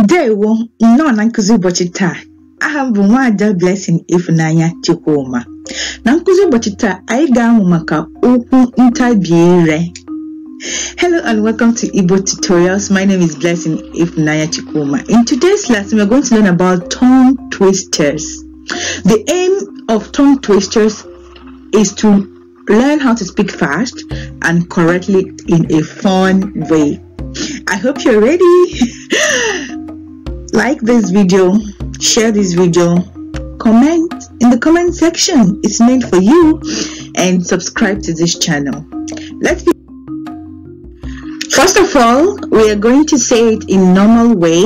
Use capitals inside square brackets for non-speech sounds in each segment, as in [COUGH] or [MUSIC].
ndewo nnọọ na nkụzi ụbọchị taa aha m bụ nwaada Blessing Ifunanya Chukwuma na nkụzi ụbọchị taa anyị ga-amụ maka okwu ntabi ire Hello and welcome to Igbo Tutorials. My name is Blessing Ifunanya Chikuma. In today's lesson, we're going to learn about tongue twisters. The aim of tongue twisters is to learn how to speak fast and correctly in a fun way. I hope you're ready. [LAUGHS] like this video share this video comment in the comment section it's made for you and subscribe to this channel let's be first of all we are going to say it in normal way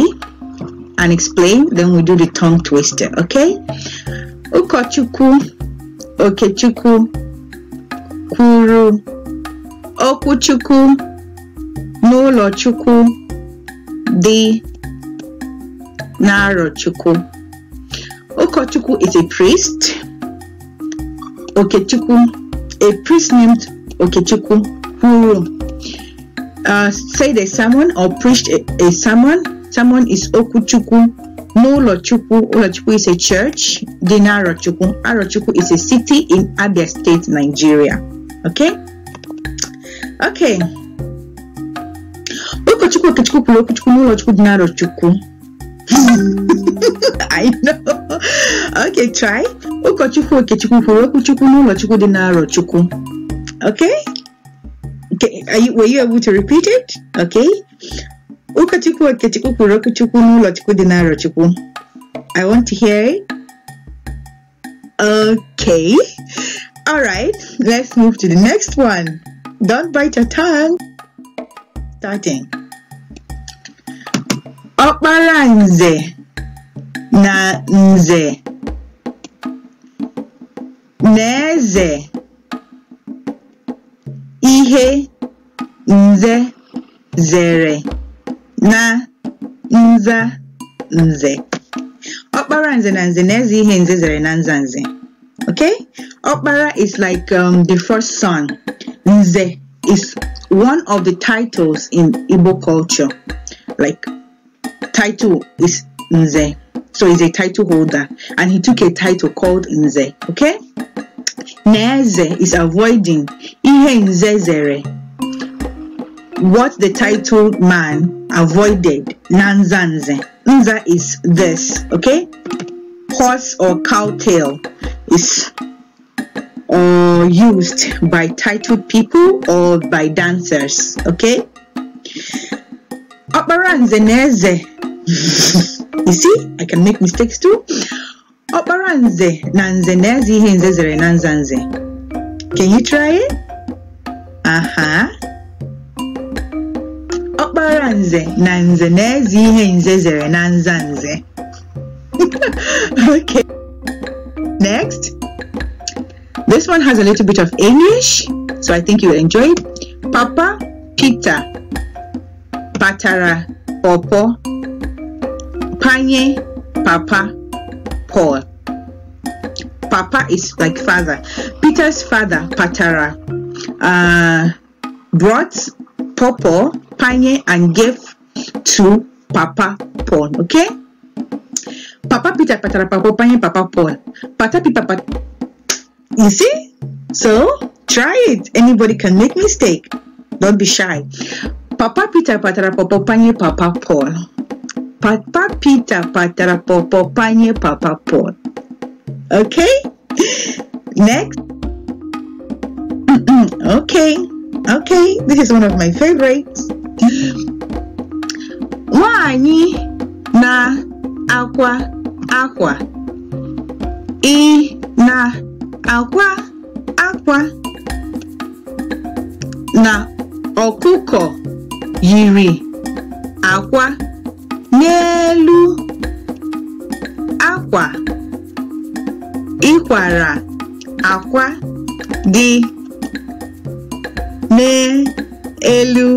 and explain then we do the tongue twister okay ukochukwu okechukwu kuru okuchuku n'ụlọchukwu dị Naro Chukwu. Okochukwu is a priest. Okechukwu, a priest named Okechukwu who uh, said a sermon or preached a, a sermon. Sermon is Okuchukwu Nolochukwu. Olochukwu is a church. Dinarochukwu. Arochukwu is a city in Abia State, Nigeria. Okay? Okay. Okochukwu, Okechukwu, Kulokuchukwu, Nolochukwu, Dinarochukwu. [LAUGHS] I know. Okay, try. Ụkọchukwu Okechukwu kwuru okwu Chukwu n'ụlọ Chukwu dị n'arọ Chukwu. Okay? okay. Are you, were you able to repeat it? Okay. Ụkọchukwu Okechukwu kwuru okwu Chukwu n'ụlọ Chukwu dị n'arọ Chukwu. I want to hear it. Okay. All right. Let's move to the next one. Don't bite your tongue. Starting ọkpara nze na nze na-eze ihe nze zere na nza nze ọkpara nze na nze na-eze ihe nze zere na nza nze okay ọkpara is like um, the first son nze is one of the titles in Igbo culture like title is Nze. So he's a title holder and he took a title called Nze. Okay? Neze is avoiding Ihe Nzezere. What the titled man avoided, Nanzanze. Nza is this, okay? Horse or cow tail is or used by titled people or by dancers, okay? you see i can make mistakes too ọkpara nze na nze na-eze zere na can you try it? Uh huh. nze na nze na-eze ihe zere na okay next this one has a little bit of english so i think you'll enjoy it papa peter Patara pawpaw Panye Papa Paul. Papa is like father. Peter's father, Patara, uh, brought Popo, Panye, and gave to Papa Paul. Okay? Papa Peter, Patara, Papa Panye, Papa Paul. Pata, Pita, Pat. You see? So, try it. Anybody can make mistake. Don't be shy. Papa Peter, Patara, Papa Panye, Papa Paul pita Patapita patarapopo panye po. Okay? Next. [CLEARS THROAT] okay. Okay. This is one of my favorites. Wanyi na aqua aqua. I na aqua aqua. Na okuko yiri aqua. n'elu akwa ịkwara akwa dị n'elu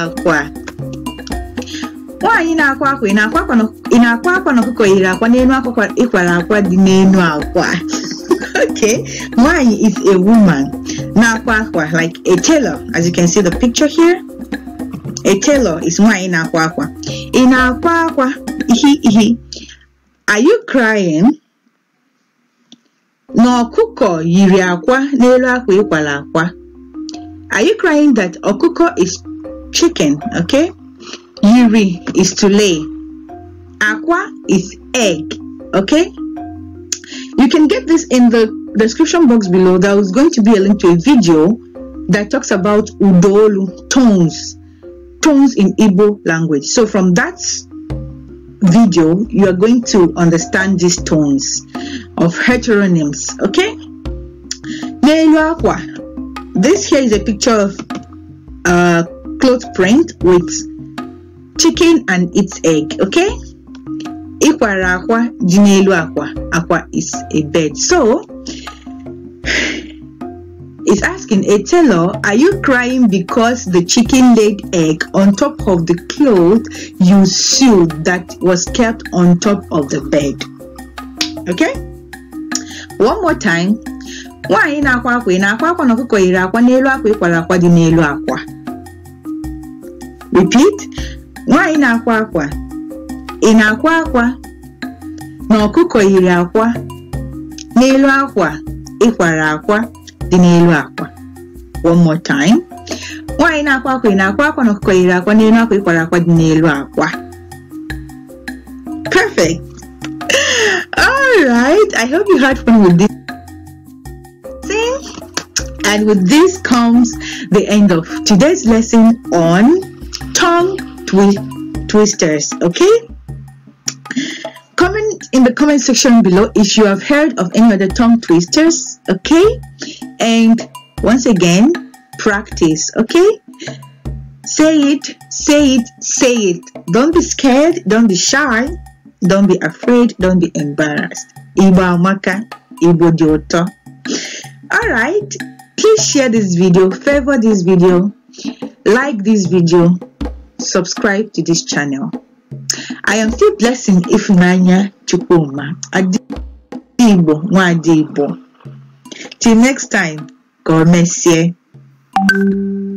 akwa nwaanyị na-akwa akwa ị na-akwa akwa na ọkụkọ yiri akwa n'elu akwa ịkwara akwa dị n'elu akwa [LAUGHS] okay nwaanyị is a woman na-akwa akwa like a tailor as you can see the picture here A is nwaanyị na-akwa akwa ị na-akwa are you crying No kuko yiri akwa n'elu akwa ịkwala akwa are you crying that ọkụkọ is chicken okay yiri is to lay akwa is egg okay you can get this in the description box below there is going to be a link to a video that talks about udolu tones Tones in Igbo language. So from that video, you are going to understand these tones of heteronyms. Okay? This here is a picture of a cloth print with chicken and its egg. Okay? Ikwara akwa, jinelu akwa. Akwa is a bed. So, is asking, Hey Taylor, are you crying because the chicken laid egg on top of the cloth you sewed that was kept on top of the bed? Okay? One more time. Nwaanyị na-akwa akwa akwa na-akwa kwa na ọkụkọ yiri akwa n'elu akwa kwa akwa dị n'elu akwa. Repeat. Nwaanyị na-akwa akwa. Ị na-akwa akwa na ọkụkọ yiri akwa n'elu akwa ịkwara akwa akwa one more time nwaanyị na-akwa akwa na-akwa na akwa n'elu akwa ịkwara akwa dị akwa perfect all right i hope you had fun with this See, and with this comes the end of today's lesson on tongue twi twisters okay comment in the comment section below if you have heard of any other tongue twisters okay and once again practice okay say it say it say it don't be scared don't be shy don't be afraid don't be embarrassed Ibo amaka ibo dị alright please share this video favor this video like this video subscribe to this channel I am still blessing if nanya Adi Igbo Nwa Till next time, God bless you.